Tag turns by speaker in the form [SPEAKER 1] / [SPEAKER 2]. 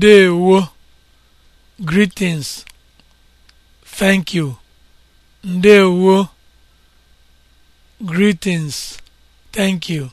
[SPEAKER 1] Ndeewo greetings thank you Ndeewo greetings
[SPEAKER 2] thank you